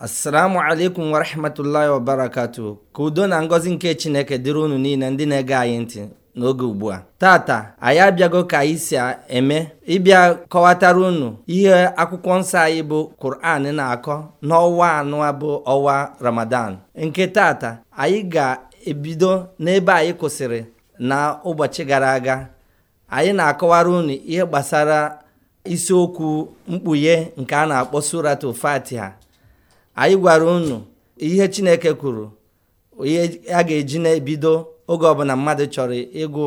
assalamu alaikum warahmatullahi wabarakatu ka udo na ngọzi nke chineke dịrị unu niile ndị na-ege anyị ntị n'oge ugbu a tata anyị abịago ka anyị si eme ịbịa kọwatara unu ihe akwụkwọ nsọ anyị bụ Kur'an na-akọ n'ọnwa anọ bụ ọnwa Ramadan nke tata anyị ga-ebido n'ebe anyị kwụsịrị na ụbọchị gara aga anyị na-akọwara unu ihe gbasara isiokwu mkpughe nke a na-akpọ suratu Fatiha anyị gwara unu ihe chineke kwuru ihe a ga-eji na-ebido oge ọbụla mmadụ chọrọ ịgụ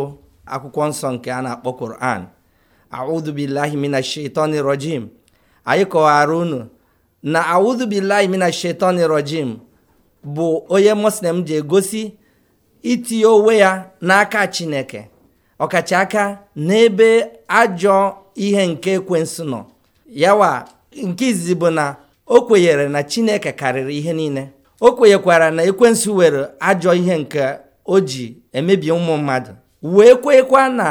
akwụkwọ nsọ nke a na-akpọ koran audhubillahi mina rojim anyị kọwara unu na audhubillahi mina shaitani bụ onye muslim ji egosi itinye onwe ya n'aka chineke ọkachaka n'ebe ajọ ihe nke ekwensu nọ yawa nke izizi bụ na o kwenyere na chineke karịrị ihe niile o kwenyekwara na ekwensu were ajọ ihe nke o ji emebi ụmụ mmadụ wee kwekwa na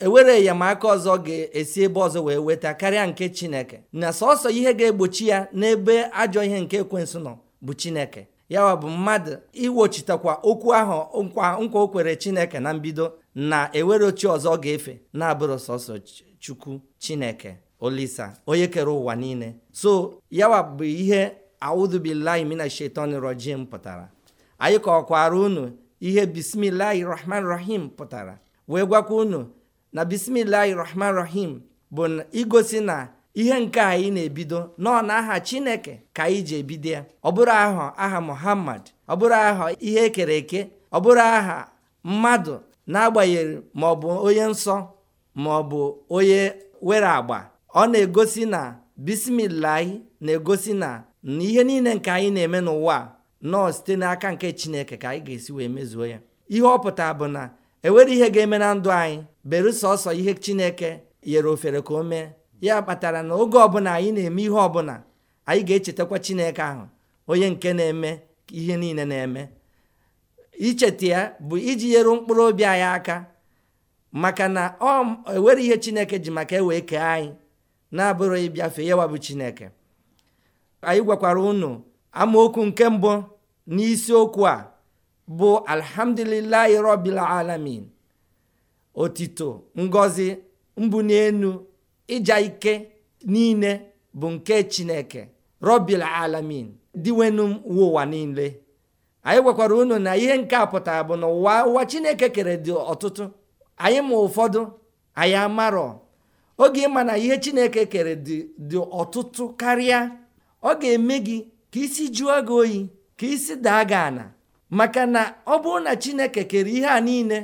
ewere enyemaka ọzọ ga-esi ebe ọzọ wee weta karịa nke chineke na sọsọ ihe ga-egbochi ya n'ebe ajọ ihe nke ekwensu nọ bụ chineke yawa bụ mmadụ iwochitakwa okwu ahụ nkwa o kwere chineke na mbido na ewere ochi ọzọ ga-efe na-abụrụ sọsọ chukwu chineke olisa onye kere ụwa niile so yawa bụ ihe audubilahi mina shetani rojim pụtara anyị kọkwara unu ihe bismilahi rahman rahim pụtara wee gwakwa unu na bismilahi rahman rahim bụ igosi na ihe nke anyị na-ebido nọ aha chineke ka anyị ji ebido ya ọ bụrụ aha aha muhammad ọ bụrụ aha ihe ekere eke ọ bụrụ aha mmadụ na ma ọ bụ onye nsọ ma ọ bụ onye were agba ọ na-egosi na bismillah na-egosi na na ihe niile nke anyị na-eme n'ụwa nọọ site n'aka nke chineke ka anyị ga-esi wee mezuo ya ihe ọ pụtara bụ na enwere ihe ga-eme na ndụ anyị beru sọsọ ihe chineke nyere ofere ka o mee ya kpatara na oge ọbụla anyị na-eme ihe ọbụla anyị ga-echetakwa chineke ahụ onye nke na-eme ihe niile na-eme icheta ya bụ iji nyere mkpụrụ obi anyị aka maka na ọ enwere ihe chineke ji maka ewe kee anyị na-abụrụ ịbịafe yawa bụ chineke anyị gwakwara unu amaokwu nke mbụ n'isiokwu a bụ alhamdulilahi robil alamin otito ngozi mbụ n'enu ịja ike niile bụ nke chineke robil alamin diwenu ụwa niile anyị gwakwara unu na ihe nke a pụtara bụ na ụwa ụwa chineke kere dị ọtụtụ anyị ma ụfọdụ anyị amarọ oge ịma na ihe chineke kere dị ọtụtụ karịa ọ ga-eme gị ka isi jụọ gị oyi ka isi daa gị ana maka na ọ bụrụ na chineke kere ihe a niile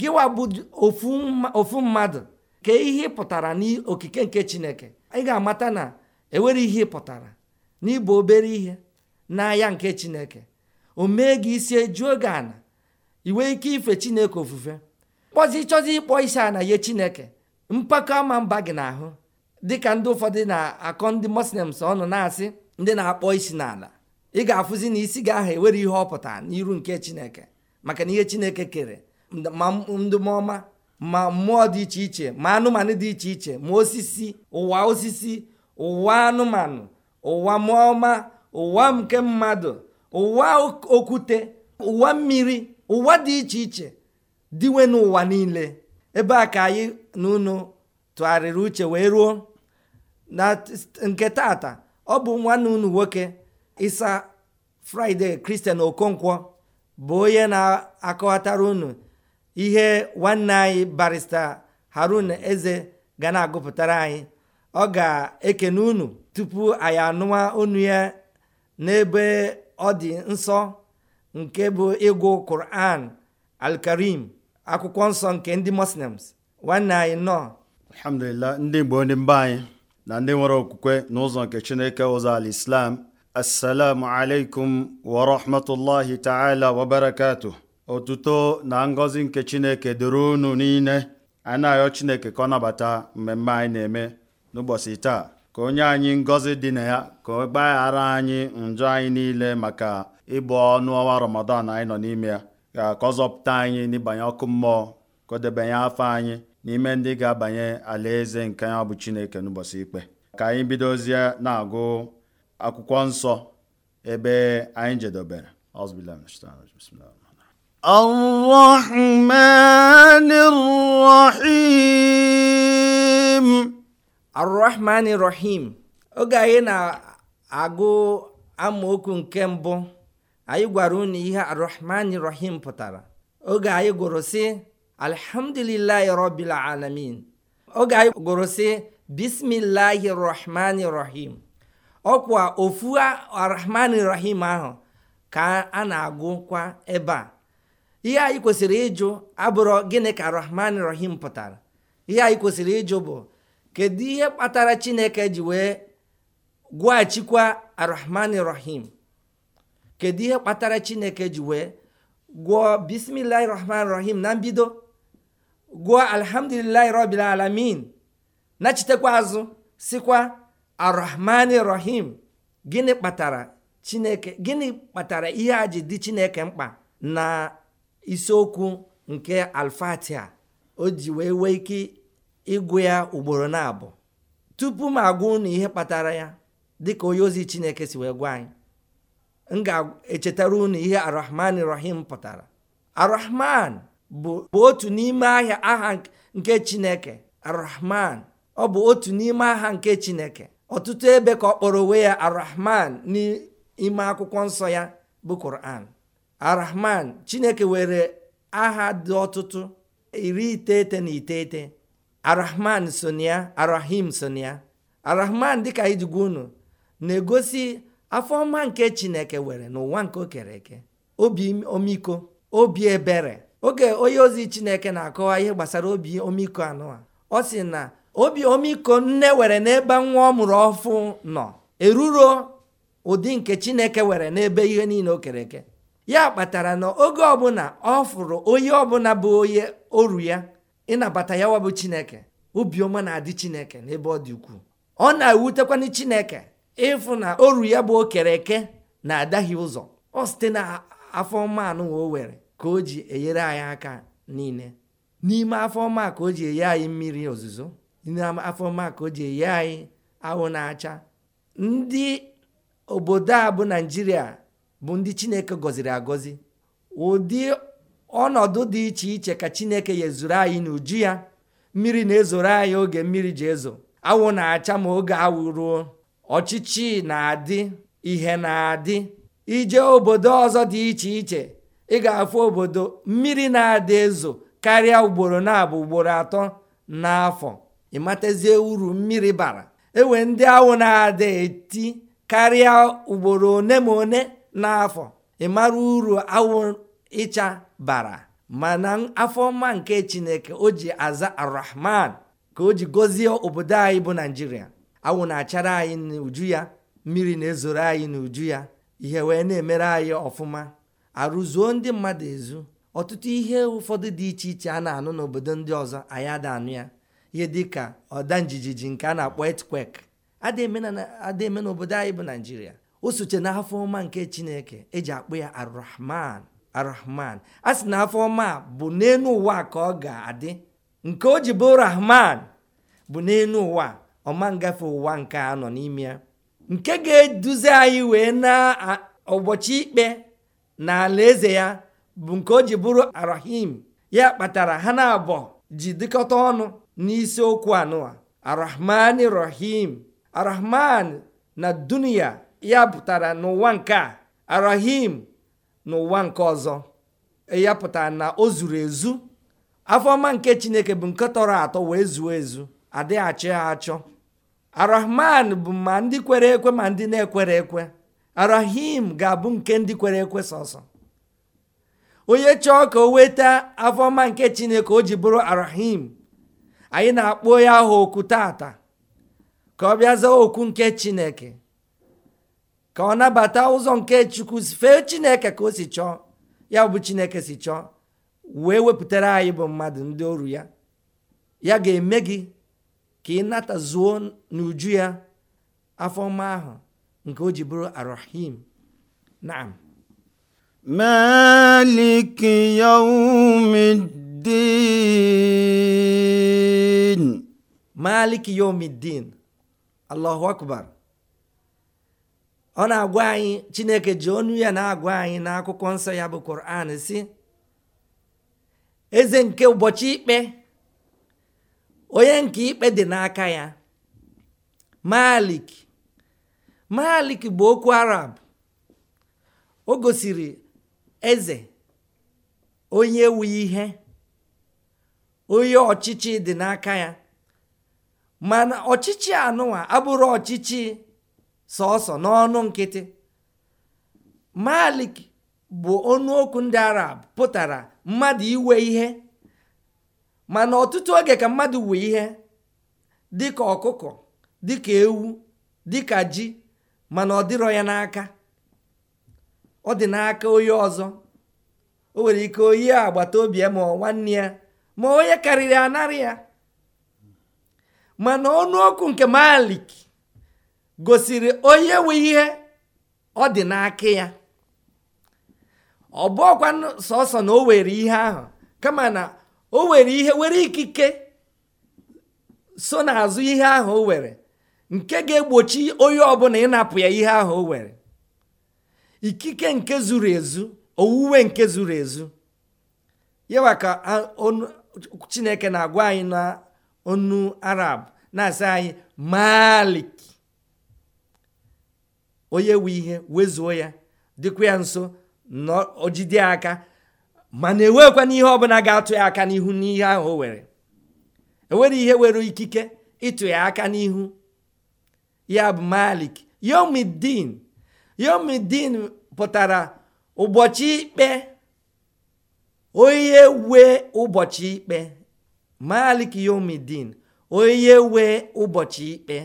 gịwa bụ ofu mmadụ ka ihe pụtara n'okike nke chineke ị ga-amata na enwere ihe pụtara n'ịbụ obere ihe n'ahịa nke chineke o mee gị isi ejuo gị ana iwe ike ife chineke ofufe kpọzi chọzi ịkpọ isi ana ihe chineke mpako ama mba gị n'ahụ dịka ndị ụfọdụ na-akọ ndị moslems ọnụ na-asị ndị na-akpọ isi n'ala ị ga-afụzi na isi gị ahụ ewere ihe ọpụta n'iru nke chineke maka na ihe chineke kere ma ọma ma mmụọ dị iche iche ma anụmanụ dị iche iche ma osisi ụwa osisi ụwa anụmanụ ụwa mụọma ụwa nke mmadụ ụwa okwute ụwa mmiri ụwa dị iche iche dịwe n'ụwa niile ebe a ka anyị na unu tụgharịrị uche wee ruo na nke tata ọ bụ nwanne unu nwoke isa fraịde kristian okonkwo bụ onye na-akọwatara unu ihe nwanne anyị barista harun eze ga na-agụpụtara anyị ọ ga-ekene unu tupu anyị anụwa onu ya n'ebe ọ dị nsọ nke bụ ịgụ kuran alkarim. akwụkwọ nsọ nke ndị muslims nwanne anyị nọ alhamdulillah ndị igbo ndị mba anyị na ndị nwere okwukwe n'ụzọ nke chineke ụzọ ala islam assalamu alaikum wa rahmatullahi ta'ala wa barakatuh otuto na ngozi nke chineke dịrị unu niile a na-ayọ chineke ka ọ nabata mmemme anyị na-eme n'ụbọchị taa ka onye anyị ngọzi dị na ya ka ọ gbaghara anyị njọ anyị niile maka ịbụ ọnụ ọnwa ramadan anyị nọ n'ime ya ka ọ zọpụta anyị n'ịbanye ọkụ mmụọ ka debanye afọ anyị n'ime ndị ga-abanye alaeze nke ya bụ Chineke n'ụbọchị ikpe ka anyị bidozie na-agụ akwụkwọ nsọ ebe anyị jedobere الرحمن الرحيم oge anyị na-agụ amaokwu nke mbụ anyị gwara unu ihe arrahmani rahim pụtara oge anyị gụrụ sị alhamdulillahi rabbil alamin oge anyị gụrụ sị bismillahi rahmani rahim ọkwa ofu arrahmani rahim ahụ ka a na-agụkwa ebe a ihe anyị kwesịrị ịjụ abụrụ gịnị ka rahman rahim pụtara ihe anyị kwesịrị ịjụ bụ kedu ihe kpatara chineke ji wee gwachikwa arrahman rahim kedu ihe kpatara chineke ji wee gụọ bismillahi rahman rahim na mbido gụọ alhamdulillahi rabbil alamin nachitekwa azụ sikwa arrahmani rahim gịnị kpatara chineke gịnị kpatara ihe a ji dị chineke mkpa na isiokwu nke alfatia o ji wee wee ike ịgụ ya ugboro na abụọ tupu m agwa na ihe kpatara ya dịka onye ozi chineke si wee gwa anyị m ga-echetara unu ihe arahman rahim pụtara arahman bụ otu n'ime ahịa aha nke chineke arahman ọ bụ otu n'ime aha nke chineke ọtụtụ ebe ka ọ kpọrọ onwe ya arahman n'ime akwụkwọ nsọ ya bụ kur'an arahman chineke were aha dị ọtụtụ iri iteghete na iteghete arahman sonia arahim sonia arahman dịka ijigwa unu na-egosi afọ ọma nke chineke were n'ụwa nke o kere eke obi omiko obi ebere oge onye ozi chineke na-akọwa ihe gbasara obi omiko anụ a ọ sị na obi omiko nne were n'ebe nwa ọ mụrụ ọfụ nọ eruro ụdị nke chineke were n'ebe ihe niile o kere eke ya kpatara na oge ọbụla ọ fụrụ onye ọbụla bụ onye oru ya ịnabata ya wabụ chineke obiọma na-adị chineke n'ebe ọ dị ukwuu ọ na-ewutekwana chineke ịfụ na oru ya bụ okere eke na-adaghị ụzọ ọ site na afọ ọma anụ o were ka o ji enyere anyị aka niile n'ime afọ ọma ka o ji enye anyị mmiri ozuzo n'ime afọ ọma ka o ji enye anyị ahụ na-acha ndị obodo a bụ naijiria bụ ndị chineke gọziri agọzi ụdị ọnọdụ dị iche iche ka chineke yezuru anyị n'uju ya mmiri na-ezoro anyị oge mmiri ji ezo awụ na-acha ma oge awụ ruo ọchịchị na-adị ihe na-adị ije obodo ọzọ dị iche iche ị ga-afụ obodo mmiri na-adị ezo karịa ugboro na-abụ ugboro atọ n'afọ ịmatazie uru mmiri bara ewe ndị awụ na adị eti karịa ugboro one ma one n'afọ ịmara uru awụ ịcha bara mana afọ ọma nke chineke o ji aza arahman ka o ji gọzie obodo anyị bụ naijiria awụ na-achara anyị n'uju ya mmiri na-ezoro anyị n'uju ya ihe wee na-emere anyị ọfụma arụzuo ndị mmadụ ezu ọtụtụ ihe ụfọdụ dị iche iche a na-anụ n'obodo ndị ọzọ anyị ada anụ ya ihe dịka ọda njijiji nke a na-akpọ earthquake ada eme n'obodo anyị bụ naijiria o soche na ọma nke chineke eji akpụ ya arahman arahman a sị na afọ ọma bụ n'elu ụwa ka ọ ga-adị nke o ji bụ rahman bụ n'elu ụwa ọma ngafe ụwa nke a nọ n'ime ya nke ga-eduzi anyị wee na ụbọchị ikpe na eze ya bụ nke o ji bụrụ arahim ya kpatara ha na abụọ ji dịkọta ọnụ n'isiokwu anụwa arahman rahim arahman na dunia ya pụtara n'ụwa nke a arahim n'ụwa nke ọzọ e ya pụtara na o zuru ezu afọma nke chineke bụ nke tọrọ atọ wee zuo ezu adịghị achọ ya achọ arahman bụ ma ndị kwere ekwe ma ndị na-ekwere ekwe arahim ga-abụ nke ndị kwere ekwe sọsọ onye chọọ ka o weta afọma nke chineke o ji bụrụ arahim anyị na-akpọ ya aha okwu tata ka ọ bịa zaa okwu nke chineke ka ọ nabata ụzọ nke chukwu fee chineke ka o si chọọ ya bụ chineke si chọọ wee wepụtara anyị bụ mmadụ ndị oru ya ya ga-eme gị ka ị zuo n'uju ya afọ ọma ahụ nke o ji bụrụ arahim naam مالك يوم الدين ọ na-agwa anyị chineke ji ọnụ ya na-agwa anyị n'akwụkwọ nsọ ya bụ quran si eze nke ụbọchị ikpe onye nke ikpe dị n'aka ya malik malik bụ okwu arab o gosiri eze onye wuyi ihe onye ọchịchị dị n'aka ya mana ọchịchị anụwa abụrụ ọchịchị sọsọ n'ọnụ nkịtị malik bụ onye okwu ndị arab pụtara mmadụ iwe ihe mana ọtụtụ oge ka mmadụ wee ihe dịka ọkụkọ dịka ewu dịka ji mana ọ dịrọ ya n'aka ọ dị n'aka onye ọzọ o nwere ike oyi agbata obi ya ma nwanne ya ma onye karịrị anarị ya mana ọnụokwu nke malik gosiri onye nwe ihe ọ dị n'aka ya ọ bụ na o were ihe ahụ kama na o were ihe were ikike so n'azụ ihe ahụ o were nke ga-egbochi onye ọbụla ịnapụ ya ihe ahụ o were ikike nke zuru ezu owuwe nke zuru ezu yawa ka chineke na-agwa anyị na onu arab na-asị anyị malik onye nwe ihe wezuo ya dịkwa ya nso na ojide aka mana enweghịkwa n'ihe ọbụla ga-atụ ya aka n'ihu n'ihe ahụ o were enwere ihe nwere ikike ịtụ ya aka n'ihu ya bụ malik yomidin yomidin pụtara ụbọchị ikpe onye wee ụbọchị ikpe malik yomidin onye wee ụbọchị ikpe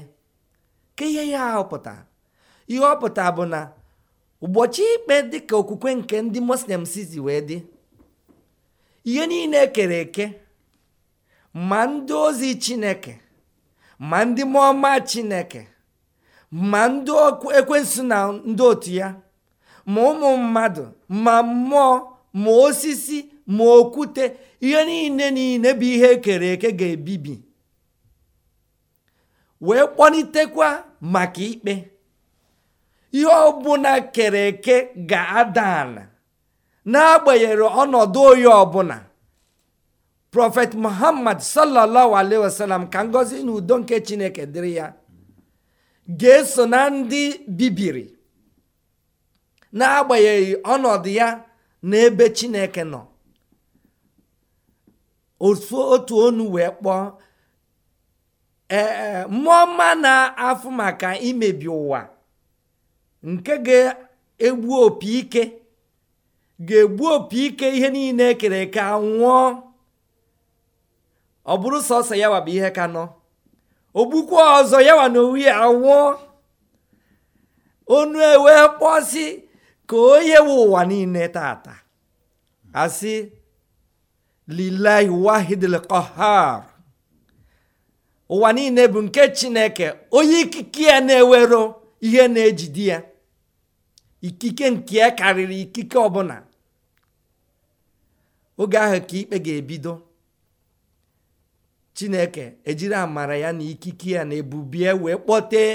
ka ihe ya ahọpụta ihe ọ pụta bụ na ụbọchị ikpe dịka okwukwe nke ndị muslim sizi wee dị ihe niile kere eke ma ndị ozi chineke ma ndị mụọma chineke ma ndị ekwensu na ndị otu ya ma ụmụ mmadụ ma mmụọ ma osisi ma okwute ihe niile niile bụ ihe ekere eke ga-ebibi wee kpọlitekwa maka ikpe ihe ọbụla kere eke ga-ada ala n'agbanyeghị ọnọdụ oyi ọbụla prọfet muhammad sallallahu alaihi wasallam ka ngọzi na udo nke chineke dịrị ya ga-eso na ndị bibiri n'agbanyeghị ọnọdụ ya na ebe chineke nọ otu onu wee kpọọ ee mmụọ mma na-afụ maka imebi ụwa nke ga-egbu opi ike ga-egbu opi ike ihe niile kere eke anwụọ ọ bụrụ sọsọ ya bụ ihe ka nọ Okpukpe ọzọ yawa na owu ya anwụọ onu ewe kpọsi ka onye we ụwa niile tata asị lilahi wahidil ụwa niile bụ nke chineke onye ikike ya na-ewero ihe na-ejide ya ikike nke ya karịrị ikike ọbụla oge ahụ ka ikpe ga-ebido chineke ejiri amara ya na ikike ya na ebubie wee kpọtee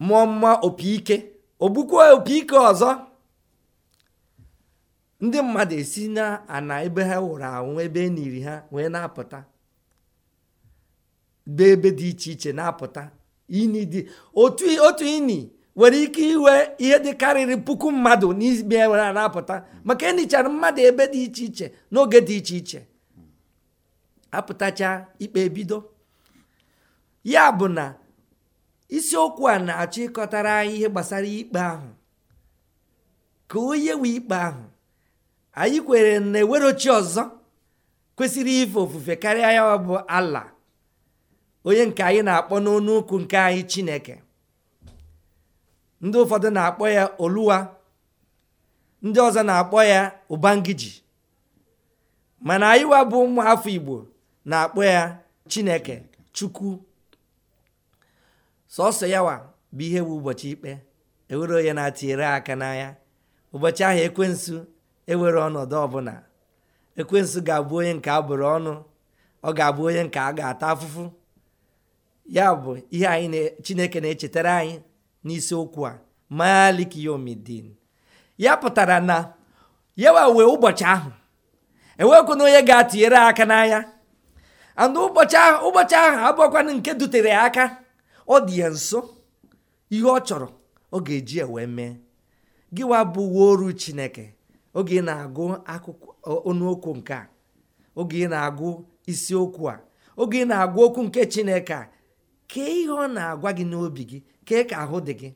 mmụọ mma opi ike ogbukwa opi ike ọzọ ndị mmadụ esi na ana ebe ha wụrụ anwụ ebe eniri ha wee na-apụta be ebe dị iche iche na-apụta ini otu ini nwere ike iwe ihe dị karịrị puku mmadụ n'ime a na-apụta maka enichara mmadụ ebe dị iche iche n'oge dị iche iche apụtacha ikpe ebido ya bụ na isiokwu a na-achọ ịkọtara anyị ihe gbasara ikpe ahụ ka onye ikpe ahụ anyị kwere na ewerochi ọzọ kwesịrị ife ofufe karịa ya bụ ala onye nke anyị na-akpọ n'ọnụ nke anyị chineke ndị ụfọdụ na-akpọ ya oluwa ndị ọzọ na-akpọ ya ụbangiji mana anyịwa bụ ụmụ afọ igbo na-akpọ ya chineke chukwu sọsọ yawa bụ ihe bụ ụbọchị ikpe ewere onye na-atinyere aka n'anya ụbọchị ahụ ekwensu ewere ọnọdụ ọbụla ekwensu ga-abụ onye nke a bụrụ ọnụ ọ ga-abụ onye nke a ga-ata afụfụ ya bụ ihe chineke na-echetara anyị n'isiokwu a malik yomidin ya pụtara na yawa wee ụbọchị ahụ e na onye ga-atụnyere aka n'anya andụ ụbọchị ahụ ụbọchị ahụ nke dutere ya aka ọ dị ya nso ihe ọ chọrọ ọ ga-eji wee mee gịwa bụ oru chineke oge ị na-agụ akụkọ nke a oge ị na-agụ isiokwu a oge ị na-agụ okwu nke chineke a kee ihe ọ na-agwa gị n'obi gị kee ka ahụ dị gị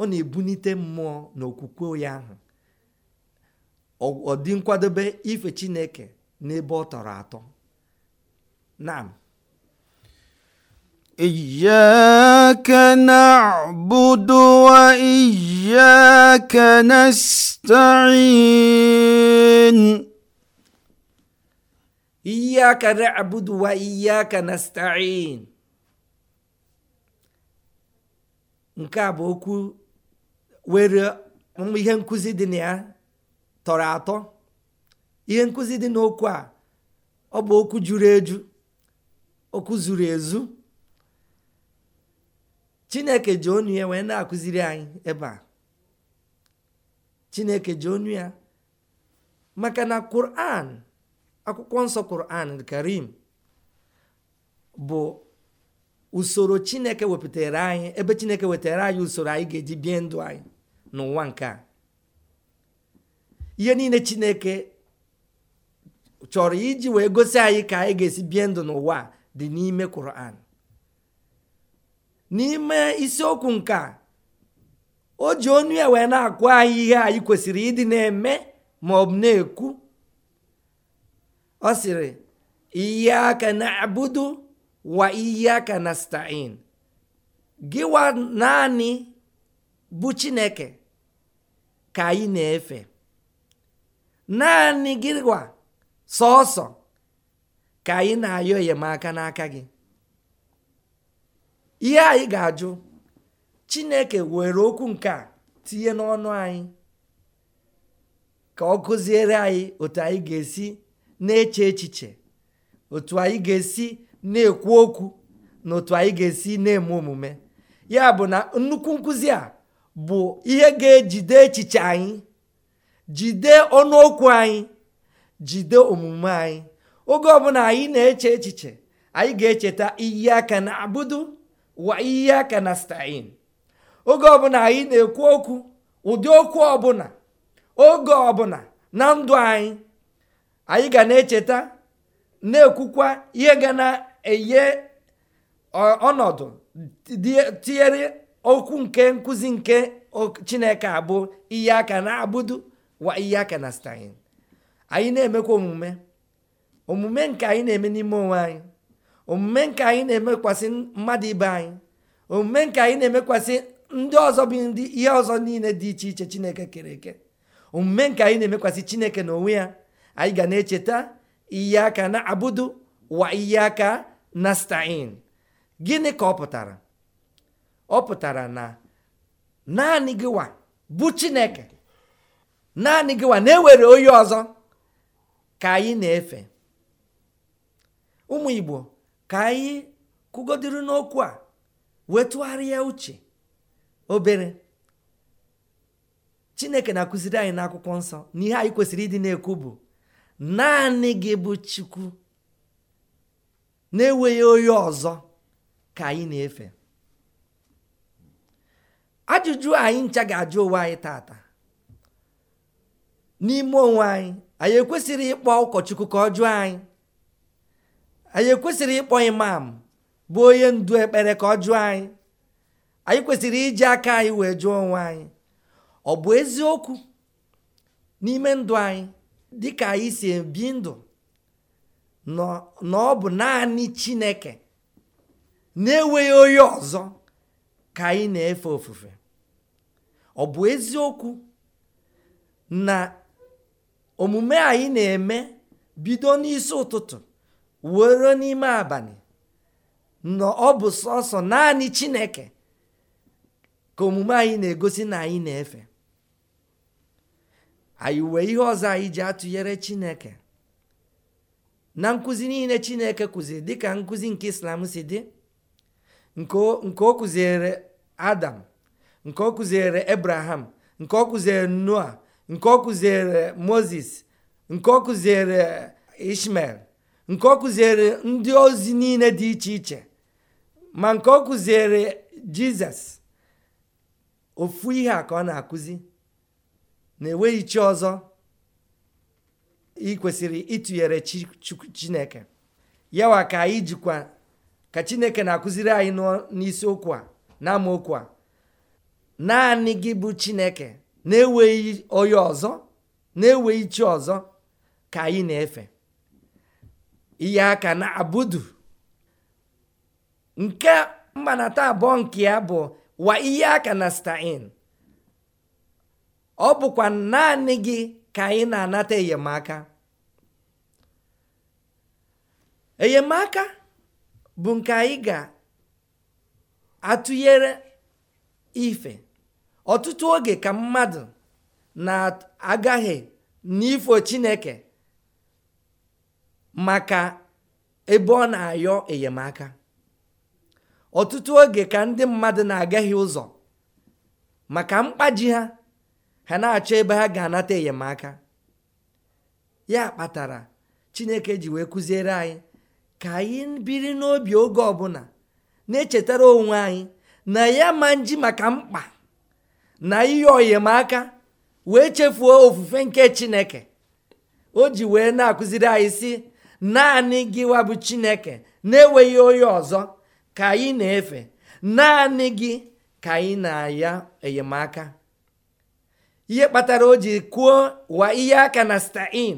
ọ na-ebunite mmụọ na okwukwe ya ahụ ọ dị nkwadobe ife chineke n'ebe ọ tọrọ atọ naam إياك نعبد وإياك نستعين إياك نعبد وإياك نستعين nke a bụ okwu were ihe nkụzi dị na ya tọrọ atọ ihe nkụzi dị n'okwu a ọ bụ okwu juru eju okwu zuru ezu chineke ji onu ya wee na-akụziri anyị ebe a chineke ji onu ya maka na Quran akwụkwọ nsọ Quran karim bụ usoro chineke wepụtara anyị ebe chineke wetara anyị usoro anyị ga-eji bie ndụ anyị n'ụwa nke a ihe niile chineke chọrọ iji wee gosi anyị ka anyị ga-esi bie ndụ n'ụwa dị n'ime Quran n'ime isiokwu nke o ji onu ya wee na-akụ anyị ihe anyị kwesịrị ịdị na-eme ma ọ bụ na-ekwu ọ sịrị ihe aka na-abụdu wa iyaka nasta'in gịwa naanị bụ chineke ka anyị na-efe naanị gịwa sọọsọ ka anyị na-ayọ enyemaka n'aka gị ihe anyị ga-ajụ chineke were okwu nke a tinye n'ọnụ anyị ka ọ gụziere anyị otu anyị ga-esi na-eche echiche otu anyị ga-esi na-ekwu okwu n'otu otu anyị ga-esi na-eme omume ya bụ na nnukwu nkụzi a bụ ihe ga-ejide echiche anyị jide ọnụokwu anyị jide omume anyị oge ọbụla anyị na-eche echiche anyị ga-echeta iyi aka na abudu wa iyi aka na stain oge ọbụla anyị na-ekwu okwu ụdị okwu ọbụla oge ọbụla na ndụ anyị anyị ga na-echeta na-ekwukwa ihe ga na enye ọnọdụ tinyere okwu nke nkụzi nke chineke abụ ihe aka na abụdu wa ihe aka na stein anyị na-emekwa omume omume nke anyị na-eme n'ime onwe anyị omume nke anyị na-emekwasị mmadụ ibe anyị omume nke anyị na-emekwasị ndị ọzọ bụ ndị ihe ọzọ niile dị iche iche chineke kere eke omume nke anyị na-emekwasị chineke n'onwe ya anyị ga na-echeta ihe aka na abụdu wa ihe aka na nastain gịnị ka ọ pụtara ọ pụtara na naanị gịwa bụ chineke naanị gịwa na-ewere onye ọzọ ka anyị na-efe ụmụ igbo ka anyị kụgodiri n'okwu a wetụgharịa uche obere chineke na-akụziri anyị n'akwụkwọ nsọ na ihe anyị kwesịrị ịdị na-ekwu bụ naanị gị bụ chukwu na-enweghị onye ọzọ ka anyị na-efe ajụjụ anyị ncha ga-ajụ onwe anyị tata n'ime onwe anyị anyị ekwesịrị ịkpọ ụkọchukwu ka ọ jụọ anyị anyị ekwesịrị ịkpọ imam bụ onye ndu ekpere ka ọ jụọ anyị anyị kwesịrị iji aka anyị wee jụọ onwe anyị ọ bụ eziokwu n'ime ndụ anyị dịka anyị si ebi ndụ na ọ bụ naanị chineke na-enweghị onye ọzọ ka anyị na-efe ofufe ọ bụ eziokwu na omume anyị na-eme bido n'isi ụtụtụ were n'ime abalị na ọ bụ sọsọ naanị chineke ka omume anyị na-egosi na anyị na-efe anyị wee ihe ọzọ anyị ji atụnyere chineke na nkuzi niile chineke kuzi dịka nkuzi nke islam si dị nke o adam nke o abraham nke ọ noah noa nke ọ moses nke ọ ishmael nke ọ kụziere ndị ozi niile dị iche iche ma nke ọ kụziere jizọs ofu ihe a ka ọ na-akụzi na enweghị chi ọzọ ị kwesịrị ịtụnyere chineke yawa ka anyị jikwa ka chineke na-akụziri anyị n'isiokwu a na amaokwu a naanị gị bụ chineke na-enweghị onye ọzọ na-enweghị chi ọzọ ka anyị na-efe ihe aka na abudu nke taa abụọ nke ya bụ wa ihe aka na stain ọ bụkwa naanị gị ka anyị na-anata enyemaka enyemaka bụ nke anyị ga-atụnyere ife ọtụtụ oge ka mmadụ na-agaghị n'ifo chineke maka ebe ọ na-ayọ enyemaka ọtụtụ oge ka ndị mmadụ na-agaghị ụzọ maka mkpaji ha ha na-achọ ebe ha ga-anata enyemaka ya kpatara chineke ji wee kụziere anyị ka anyị biri n'obi oge ọbụla na-echetara onwe anyị na ya ma nji maka mkpa na ihe ọyemaka wee chefuo ofufe nke chineke o ji wee na-akụziri anyị si naanị gịwa bụ chineke na-enweghị onye ọzọ ka anyị na-efe naanị gị ka anyị na ya enyemaka ihe kpatara o ji kwuo wa ihe aka na stain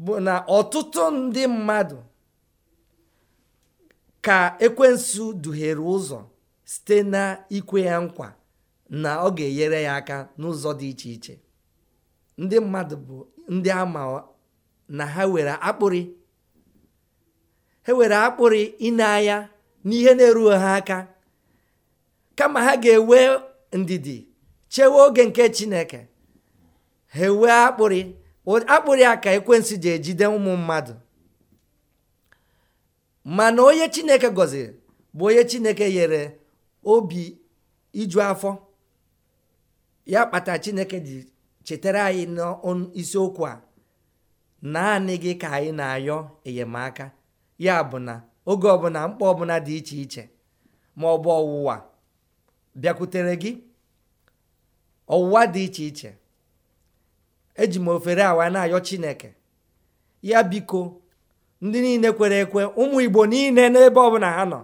bụ na ọtụtụ ndị mmadụ ka ekwensu duhere ụzọ site na ikwe ya nkwa na ọ ga-enyere ya aka n'ụzọ dị iche iche ndị mmadụ bụ ndị ama na ha were akpụrị ha were akpụrị ịna-anya n'ihe na-erughị ha aka kama ha ga-ewe ndidi chewe oge nke chineke ha ewee akpụrị akpụrị a ka ekwensu ji ejide ụmụ mmadụ mana onye chineke gọziri bụ onye chineke nyere obi iju afọ ya kpata chineke ji chetara anyị n'isiokwu a naanị gị ka anyị na-ayọ enyemaka ya bụ na oge ọbụla mkpa ọbụla dị iche iche ma ọ ọwụwa bịakwutere gị ọwụwa dị iche iche eji m ofere awa na-ayọ chineke ya biko ndị niile kwere ekwe ụmụ igbo niile n'ebe ọbụla ha nọ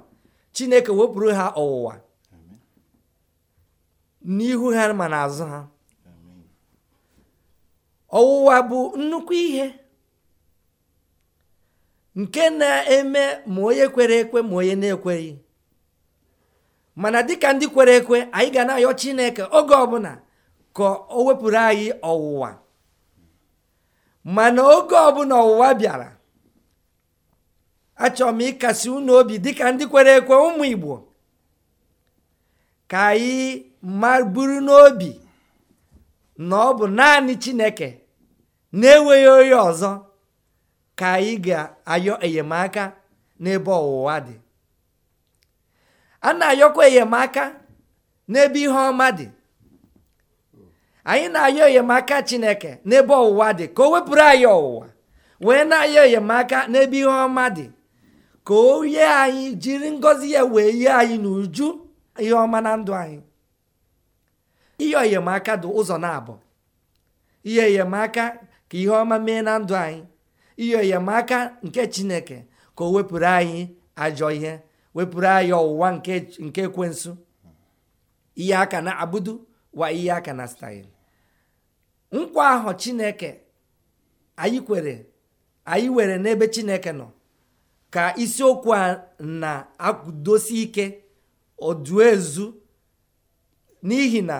chineke wepụrụ ha ọwụwa n'ihu ha ma azụ ha ọwụwa bụ nnukwu ihe nke na-eme ma onye kwere ekwe ma onye na-ekweghị mana dịka ndị kwere ekwe anyị ga na-ayọ chineke oge ọbụla Ka o wepụrụ anyị ọwụwa mana oge ọbụla ọwụwa bịara achọrọ m ịkasi unu obi ka ndị kwere ekwe ụmụ igbo ka anyị maburu n'obi na ọ bụ naanị chineke na-enweghị onye ọzọ ka anyị ga-ayọ enyemaka n'ebe ọwụwa dị a na-ayọkwa enyemaka n'ebe ihe ọma dị anyị na-ayọ enyemaka chineke n'ebe ọwụwa dị ka o wepụrụ anyị ọwụwa wee na-ayọ enyemaka n'ebe ihe ọma dị ka o yie anyị jiri ngọzi ya wee yie anyị n'uju ihe ọma na ndụ anyị ihe enyemaka dị ụzọ na-abụ ihe enyemaka ka ihe ọma mee na ndụ anyị ihe enyemaka nke chineke ka o wepụrụ anyị ajọ ihe wepụrụ anyị ọwụwa nke ekwensu ihe aka na abudu wa ihe aka na staịl nkwa ahụ chineke anyị kwere anyị were n'ebe chineke nọ ka isiokwu a na-akwudosi ike ọdụ ezu n'ihi na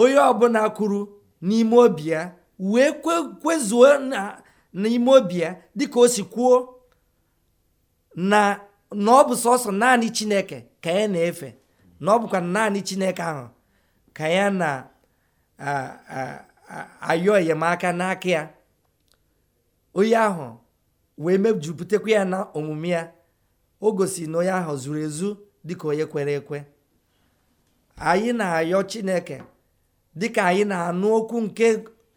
onye ọbụla kwuru n'ime obi ya wee kwezuo n'ime obi ya dịka o si kwuo na ọ bụ sọsọ naanị chineke ka ya na-efe na ọ bụkwa naanị chineke ahụ ka ya na ayọ enyemaka n'aka ya onye ahụ wee mejupụtakwa ya na omume ya o gosi na onye ahụ zuru ezu dịka onye kwere ekwe anyị na-ayọ chineke dịka anyị na-anụ okwu nke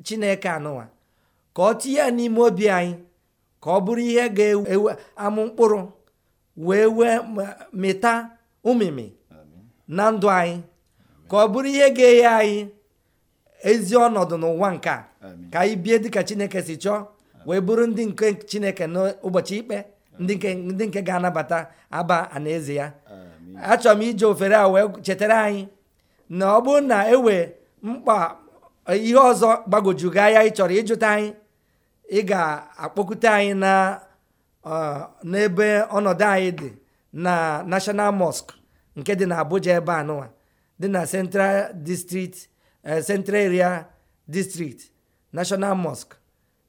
chineke anụwa ka ọ tinye ya n'ime obi anyị ka ọ bụrụ ihe ga-ewe amụ mkpụrụ wee wee mịta ụmịmị na ndụ anyị ka ọ bụrụ ihe ga-enye anyị ezi ọnọdụ n'ụwa nke a ka anyị bie dịka chineke si chọọ wee bụrụ ndị nke chineke n'ụbọchị ikpe ndị nke ga-anabata aba anaeze ya achọrọ m ije ofere a wee chetara anyị na ọ bụrụ na ewe mkpa ihe ọzọ gbagojugo anya ị chọrọ ịjụta anyị ị ga-akpọkute anyị na n'ebe ọnọdụ anyị dị na National Mosque nke dị na Abuja ebe anụwa dị na Central District Eh, central area district national mosque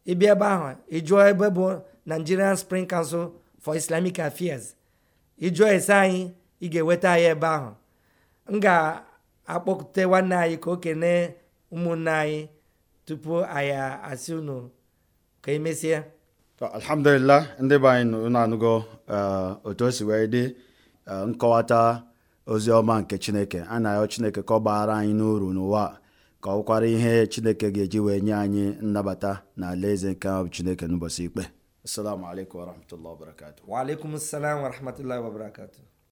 ịbịa ebe ahụ ịjụọ ebe bụ nigerian spring council for islamic affairs ịjụọ ese anyị ị ga-eweta anyị ebe ahụ m ga-akpọkute nwanne anyị ka o kene ụmụnne anyị tupu anyị asị unu ka emesie alhamdulillah ndị be anyị unu anụgo eh, otu o si wee dị eh, nkọwata ozi ọma nke chineke a na-ayọ chineke ka ọ gbaghara anyị n'uru n'ụwa ka ọ kwara ihe chineke ga-eji wee nye anyị nnabata na alaeze nke ahụ chineke n'ụbọchị ikpe assalamu alaikum warahmatullahi wabarakatuh wa alaikum assalam warahmatullahi wabarakatuh